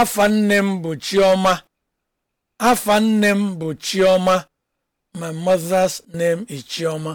afa nne m bụ chioma afa nne m bụ chioma my mother's name is chioma